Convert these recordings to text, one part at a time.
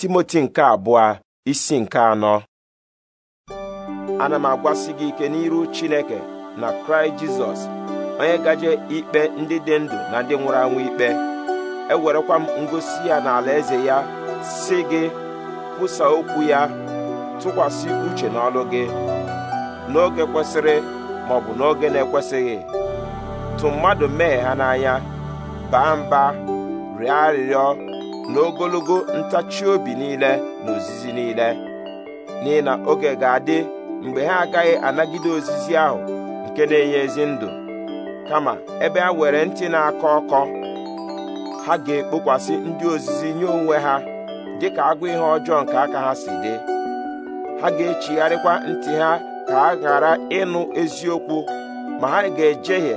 timoti nke abụọ isi nke anọ ana m agwasị gị ike n'iru chineke na kraịst jizọs onye gaje ikpe ndị dị ndụ na ndị nwụrụ anwụ ikpe ewerekwa m ngosi ya na eze ya si gị kwụsa okwu ya tụkwasị uche n'ọlụ gị n'oge kwesịrị ma ọ bụ n'oge na-ekwesịghị tụ mmadụ mee ha n'anya baa mba rịọ arịrịọ n'ogologo ntachi obi niile na ozizi niile n'ihi na oge ga-adị mgbe ha agaghị anagide ozizi ahụ nke na-enye ezi ndụ kama ebe ha were ntị na-akọ ọkọ ha ga-ekpokwasị ndị ozizi nye onwe ha dị ka agụ ihe ọjọọ nke aka ha si dị ha ga-echigharịkwa ntị ha ka ha ghara ịnụ eziokwu ma ha ga-ejehie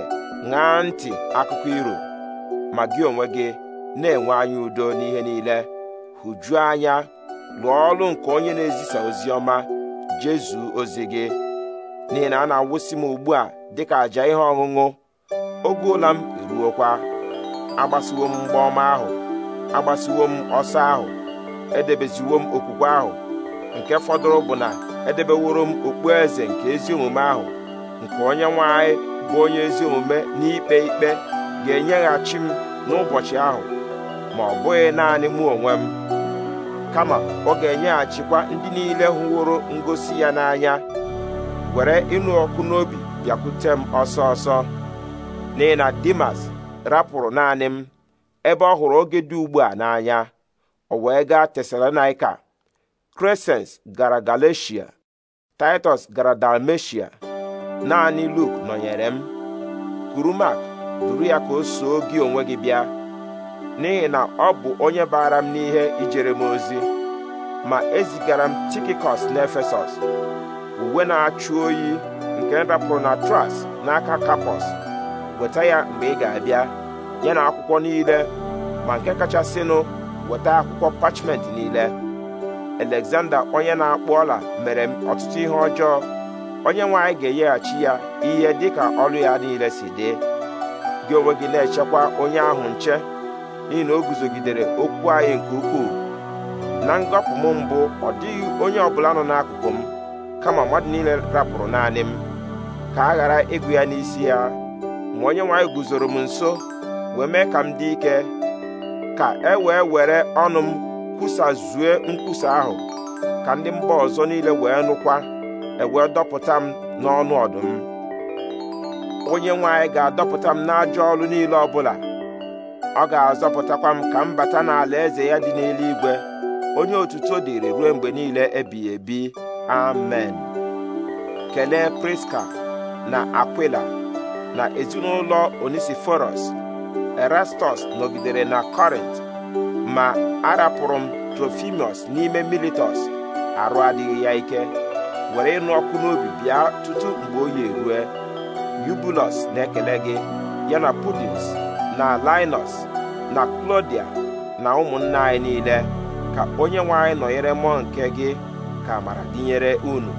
ṅaa ntị akụkọ iro ma gị onwe gị na-enwe anya udo n'ihe niile hụjuo anya lụọ ọrụ nke onye na-ezisa ozi ọma jezu ozi gị n'ihi na a na-awụsị m ugbu a dịka àjà ihe ọṅụṅụ oge m eruokwa agbasiwo m mgba ọma ahụ agbasiwo m ọsọ ahụ edebeziwo m okwukwe ahụ nke fọdụrụ bụ na edebeworo m okpueze nke ezi omume ahụ nke onye nwe anyị bụ onye ezi omume n'ikpe ikpe ga-enyeghachi m n'ụbọchị ahụ ma ọ bụghị naanị mụ onwe m kama ọ ga-enyeghachikwa ndị niile hụworo ngosi ya n'anya were ịnụ ọkụ n'obi bịakwute m ọsọ ọsọ n'ihi Dimas rapụrụ naanị m ebe ọ hụrụ oge dị ugbu a n'anya o wee gaa Tesalonaika kresens gara Galatia Titus gara Dalmatia naanị Luk nọnyere m Kurumak duru ya ka o soo gị onwe gị bịa n'ihi na ọ bụ onye baara m n'ihe ijere m ozi ma ezigara m na n'efesọs uwe na-achụ oyi nke m rapụrụ na tras n'aka kapọs weta ya mgbe ị ga-abịa ya na akwụkwọ niile ma nke kachasịnụ weta akwụkwọ pachment niile Alexander onye na-akpụ ọla mere m ọtụtụ ihe ọjọọ onye nwanyị ga-enyeghachi ya ihe dịka ọrụ ya niile si dị gị onwe gị na-echekwa onye ahụ nche n'ihi na o guzogidere okwu anyị nke ukwuu na ngọpụ m mbụ ọ dịghị onye ọbụla nọ n'akụkụ m kama mmadụ niile rapụrụ naanị m ka a ghara ịgụ ya n'isi ya ma onye nwe guzoro m nso wee mee ka m dị ike ka e wee were ọnụ m kwusazue nkwusa ahụ ka ndị mba ọzọ niile wee nụkwa ewee dọpụta m n'ọnụ ọdụm onye nwe ga-adọpụta m n'ajọ ọrụ niile ọbụla ọ ga-azọpụtakwa m ka m bata n'ala eze ya dị n'eluigwe onye otuto dịrị ruo mgbe niile ebighị ebi amen kelee priska na akwila na ezinụlọ onisiforos erastus nọgidere na kọrint ma arapụrụ m trofimios n'ime militọs arụ adịghị ya ike were ịnụ ọkụ n'obi bịa tutu mgbe oyi erue yubulos na-ekele gị ya na pudins na linus na klodia na ụmụnna anyị niile ka onye nwe anyị nọnyere mmụọ nke gị ka amara dịnyere unu